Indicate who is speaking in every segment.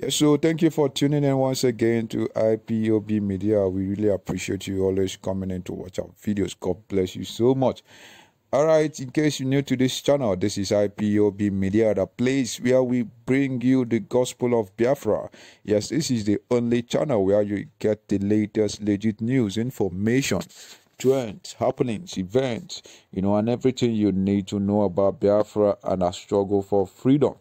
Speaker 1: Yeah, so thank you for tuning in once again to IPOB Media. We really appreciate you always coming in to watch our videos. God bless you so much. All right, in case you're new to this channel, this is IPOB Media, the place where we bring you the gospel of Biafra. Yes, this is the only channel where you get the latest legit news, information, trends, happenings, events, you know, and everything you need to know about Biafra and our struggle for freedom.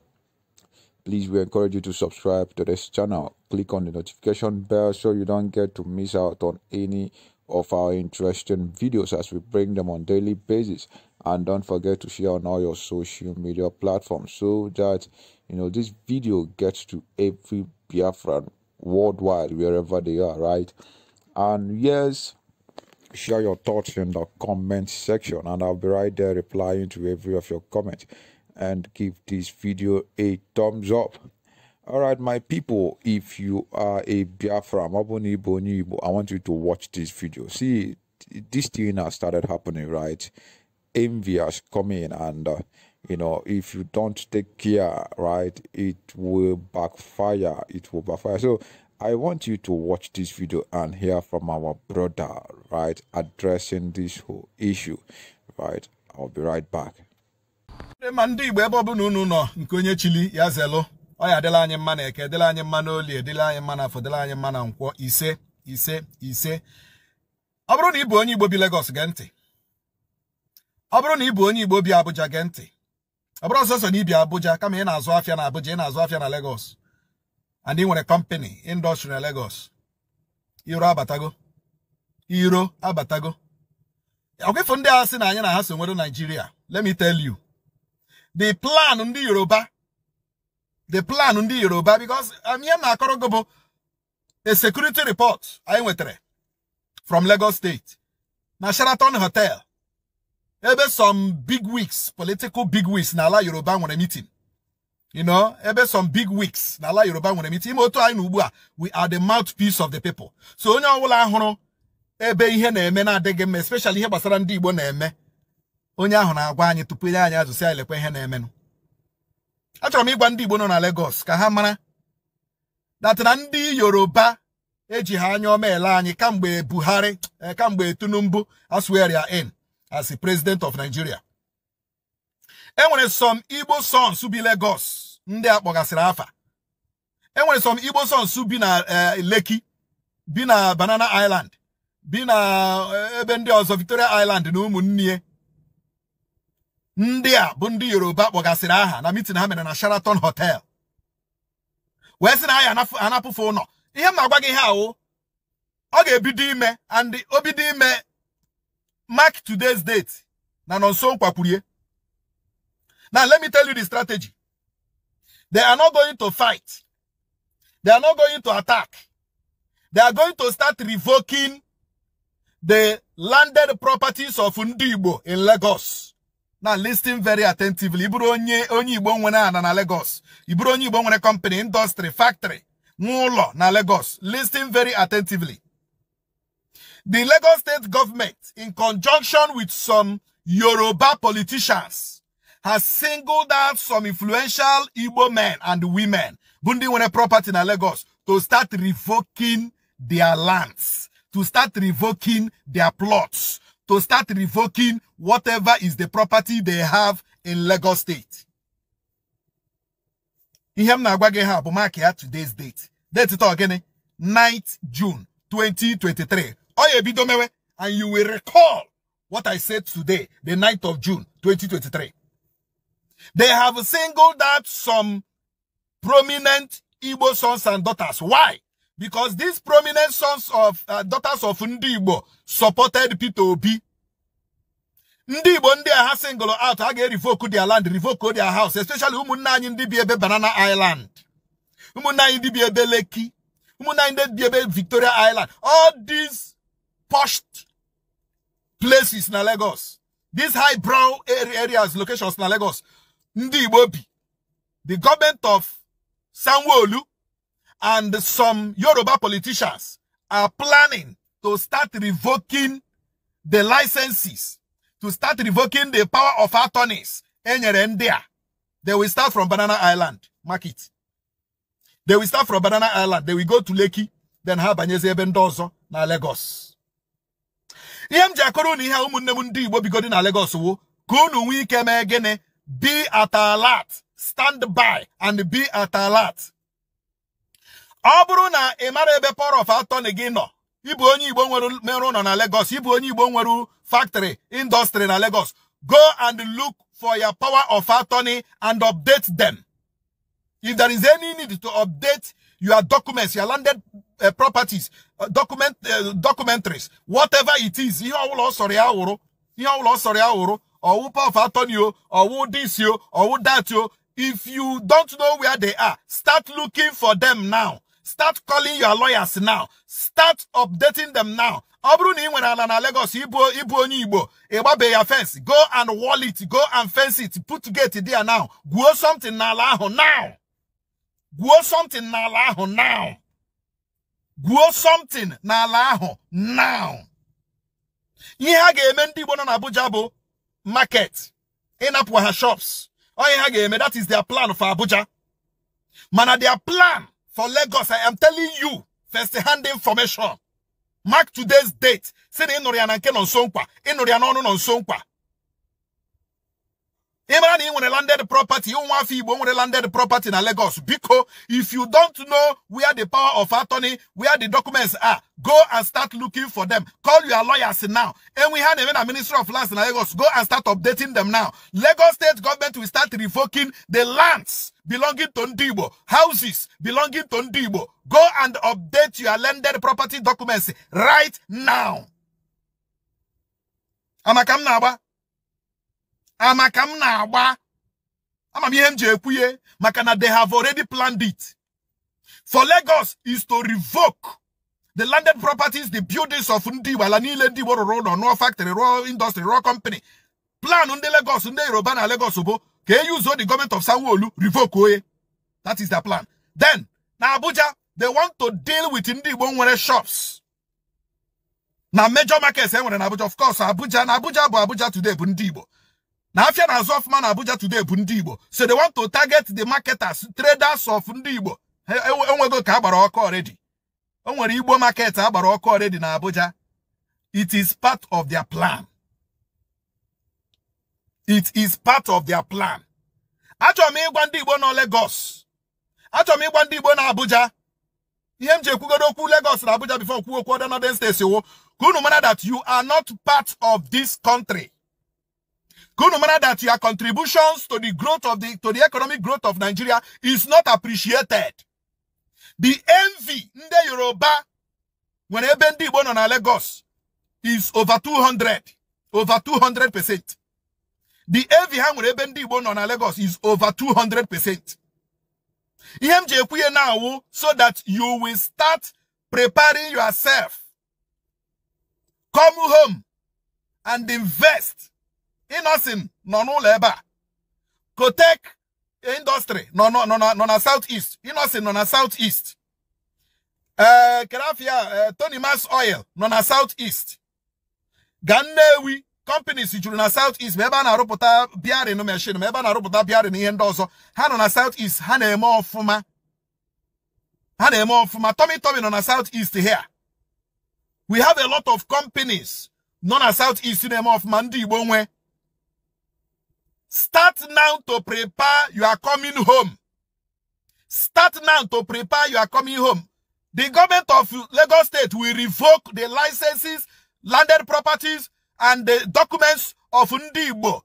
Speaker 1: Please, we encourage you to subscribe to this channel. Click on the notification bell so you don't get to miss out on any of our interesting videos as we bring them on daily basis and don't forget to share on all your social media platforms so that you know this video gets to every Biafran worldwide wherever they are right and yes share your thoughts in the comment section and I'll be right there replying to every of your comments and give this video a thumbs up all right my people if you are a biafra maboni boni i want you to watch this video see this thing has started happening right envy has come in and uh, you know if you don't take care right it will backfire it will backfire so i want you to watch this video and hear from our brother right addressing this whole issue right i'll be right back
Speaker 2: ndị ma ndị igbo ebe ọbụla unu nọ nke onye chili ya zelụ ọya dịla anyị mma na eke dịla anyị mma na olie anyị mma na afọ dịla anyị mma na nkwọ ise ise ise ọ bụrụ na ị bụ onye igbo bi Lagos gee ntị ọ bụrụ na ị bụ onye igbo bi Abuja gee ntị ọ bụrụ ọsọsọ na ibi Abuja kama ị na-azụ afịa na Abuja ị na-azụ afịa na Lagos and ị nwere kọmpani indọstrị na Lagos iro abatago iro abatago ọkwịfụ ndị a sị na anyị na ha so nwere Naijiria let the plan on the Yoruba the plan on the Yoruba because I'm um, here akoro a bụ a security report i anyị nwetara from Lagos State now Sheraton Hotel ebe some big weeks, political big weeks, wigs n'ala Yoruba nwere meeting you know, ebe some big weeks n'ala Yoruba nwere meeting ime otu we are the mouthpiece of the people so onye ọbụla hụrụ ebe ihe na-eme na-adịghị mma especially here, gbasara ndị Igbo na-eme onye ahụ na-agwa anyị tupu ile anyị ajụsị anyị lekwa ihe na-emenụ achọrọ m ịgwa ndị Igbo nọ na legos ka ha mara datị na ndị Yoruba eji ha anya ọma ele anyị kamgbe Buhari eh, kamgbe Tinubu asweria in as the president of Nigeria enwere some Igbo sons bi Lagos ndị a kpọgasịrị afa enwere some Igbo sons bi na eh, Lekki bi na Banana Island bi na eh, ebe ndị ọzọ Victoria Island na ụmụnne ndị a bụ ndị yoruba kpọgasịrị aha na mitin ha mere na sheraton hotel wee sị na ha ya anapụfe ụlọ ihe m na-agwa gị ihe ahụ ọ ga-ebido ime and obido ime mark today's date na nọnso nkwakwurie now let me tell you the strategy they are not going to fight they are not going to attack they are going to start revoking the landed properties of Ndigbo in Lagos now listen very attentively ịbụrụ onye onye igbo nwere ana na Lagos ịbụrụ onye igbo nwere company industry factory nwa na Lagos listing very attentively the Lagos state government in conjunction with some Yoruba politicians has singled out some influential Igbo men and women bundi ndị nwere property na Lagos to start revoking their lands to start revoking their plots to start revoking whatever is the property they have in Lagos State. Ihe na-agwa ha bụ mark today's date. Date ito gịnị? 9th June 2023. and you will recall what I said today, the 9th of June 2023. They have singled out some prominent Igbo sons and daughters. Why? Because these prominent sons of uh, daughters of Ndibo supported Peter Obi ndị Igbo ndị a ha out a ga-erivoku their land revoke their house especially ụmụnne anyị ndị bi ebe Banana Island ụmụnne anyị ndị bi ebe Lekki ụmụnne anyị ndị bi ebe Victoria Island all these pushed places na Lagos these high brow areas locations na Lagos ndị Igbo bi the government of sanwo and some Yoruba politicians are planning to start revoking the licenses to start revoking the power of attorneys enyere ndị a they will start from banana island market they will start from banana island they will go to lekki then ha banyezi ebe ndị ọzọ na lagos ihe m ji akọrọ na ihe ụmụnne m ndị igbo bigodi na lagos wo ka unu nwee ike mee gịnị be at alert stand by and be at alert ọ bụrụ na ị mara ebe power of attorney gị nọ ịbụ onye igbo nwere mere ụlọ na Lagos ịbụ onye igbo nwere factory industry na Lagos go and look for your power of attorney and update them if there is any need to update your documents your landed uh, properties uh, document uh, documentaries whatever it is ihe ọbụla ọ sọrọ ya wụrụ ihe ọbụla ọ sọrọ ya wụrụ ọwụ power of attorney o ọwụ this o ọwụ that o if you don't know where they are start looking for them now start calling your lawyers now start updating them now ọ bụrụ na ị nwere ala na Lagos ibu onye Igbo igba ya fence go and wall it go and fence it put gate there now gwuo something n'ala ahụ now gwuo something n'ala ahụ now gwuo something n'ala ahụ now ihe a ga-eme ndị Igbo nọ na Abuja bụ market ịnapụ ha shops ọ ihe ha ga-eme that is their plan for Abuja mana their plan for Lagos. I am telling you, first-hand information. Mark today's date. Say the Inorian and Ken on Sonkwa. Inorian on Sonkwa ịmara na ị nwere landed property ụmụafọ igbo nwere landed property na lagos biko if you don't know where the power of attorney where the documents are go and start looking for them call your lawyers now And we na-eme na ministry of lands na lagos go and start updating them now lagos state government will start revoking the lands belonging to Ndibo, houses belonging to Ndibo. go and update your landed property documents right now amaka m na-agba ama ah, m na-agba ama m ihe m ji ekwuye maka na they have already planned it for Lagos is to revoke the landed properties the buildings of ndị Igbo ala niile ndị Igbo rụrụ ụlọ rụọ factory rụọ industry rụọ company plan ndị Lagos ndị Yoruba na Lagos bụ ka you use the government of Sanwoolu revoke oye that is their plan then na Abuja they want to deal with ndị Igbo nwere shops na major markets e nwere na Abuja of course Abuja na Abuja bụ Abuja today bụ ndị Igbo na afia na azụ ọfụma na Abuja today bụ ndị so they want to target the marketers traders of ndị Igbo enwego ka agbara ọkụ already o nwere Igbo market agbara already na Abuja it is part of their plan it is part of their plan I m ịgwa to go nọ Lagos I m ịgwa to go na Abuja ihe m ji go okwu Lagos na Abuja before kwuo okwu other northern states wo ka that you are not part of this country Good no matter that your contributions to the growth of the to the economic growth of Nigeria is not appreciated. The envy in the Yoruba when Ebendi born on Lagos is over 200, over 200%. The envy when Ebendi born on Lagos is over 200%. EMJ now so that you will start preparing yourself. Come home and invest Innocent nọ n'ụlọ ebe Kotek industry nọ nọ nọ na south southeast Innocent nọ na south eh, kerafia eh, Tony Mass Oil nọ na south east companies juru na south east ma ebe a na-arụpụta biarin machine ma ebe a na-arụpụta biarin ihe ndị ọzọ ha nọ na Southeast east ha na-eme ọfụma ha na-eme ọfụma Tommy Tommy nọ na here we have a lot of companies nọ Southeast south east na mandi ọfụma Start now to prepare you are coming home. Start now to prepare you are coming home. The government of Lagos State will revoke the licenses, landed properties, and the documents of Ndigbo.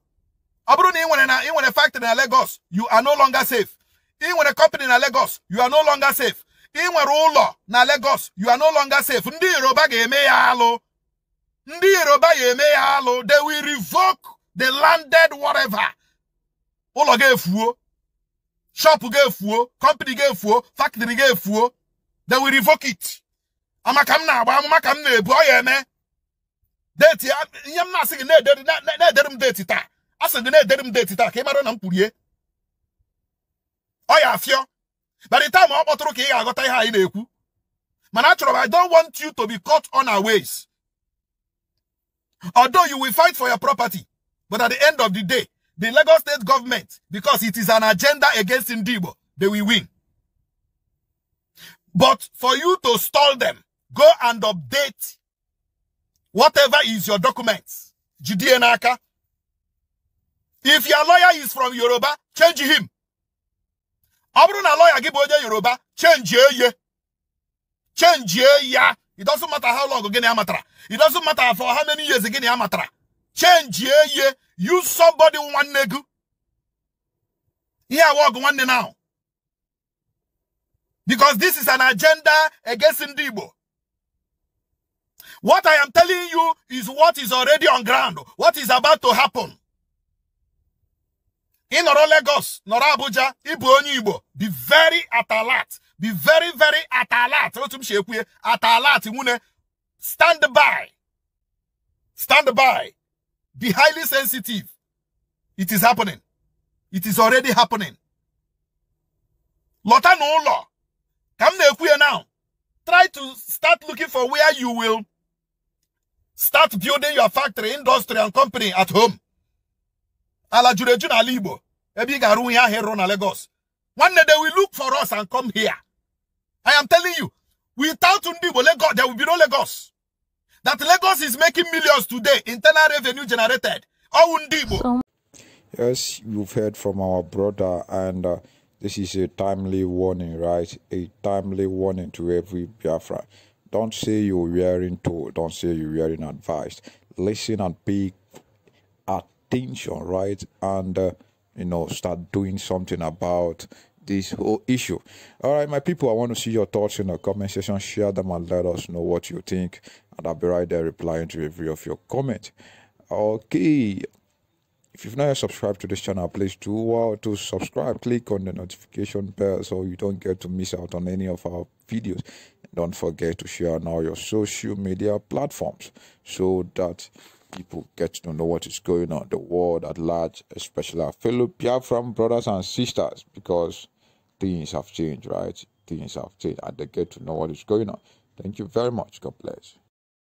Speaker 2: Abru ni in a factory in Lagos, you are no longer safe. In a company in Lagos, you are no longer safe. In ụlọ na Lagos, you are no longer safe. Ndị Yoruba ga-eme ya alụ. They will revoke the landed whatever ụlọ ga-efuo shop ga-efuo company ga-efuo factory ga-efuo they will revoke it amaka m na-agba amụma ka m na-ebu ọ ya eme deti ihe m na-asị gị na-edere m deti taa asị gị na-edere m deti taa ka ị mara na m kwurie ọ ya afịọ But the time ọ kpọtụrụ ka ị ga-aghọta ihe anyị na-ekwu mana achọrọ m I ga aghota ihe anyi Man, ekwu mana achoro mi do not want you to be caught on our ways although you will fight for your property but at the end of the day the Lagos state government, because it is an agenda against Indibo, they will win. But for you to stall them, go and update whatever is your documents. and Naka. If your lawyer is from Yoruba, change him. Abruna bụrụ na lawyer gị bụ Yoruba, change ye. Change ya. It doesn't matter how long gịnị amatra. It doesn't matter for how many years gịnị amatra. Change ye. You somebody one nigga. Here I walk one day now. Because this is an agenda against Ndibo. What I am telling you is what is already on ground. What is about to happen. In Noro Lagos, Noro Abuja, Ibu Onyibo, be very at alert. Be very, very at alert. At alert. Stand by. Stand by. Be highly sensitive. It is happening. It is already happening. Lota no law. Come here now. Try to start looking for where you will start building your factory, industry, and company at home. Ala Jureju na Libo. Ebi garu ya hero Lagos. One day they will look for us and come here. I am telling you, without Undibo, Lagos, there will be no Lagos that Lagos is making millions today, internal revenue generated. Oh, Undibo.
Speaker 1: Yes, you've heard from our brother, and uh, this is a timely warning, right? A timely warning to every Biafra. Don't say you're wearing told, don't say you're wearing advised. Listen and pay attention, right? And, uh, you know, start doing something about this whole issue. All right, my people, I want to see your thoughts in the comment section. Share them and let us know what you think. And I'll be right there replying to every of your comment. Okay. If you've not yet subscribed to this channel, please do well to subscribe. Click on the notification bell so you don't get to miss out on any of our videos. And don't forget to share on all your social media platforms so that people get to know what is going on, the world at large, especially our fellow Biafran brothers and sisters, because things have changed, right? Things have changed, and they get to know what is going on. Thank you very much. God bless.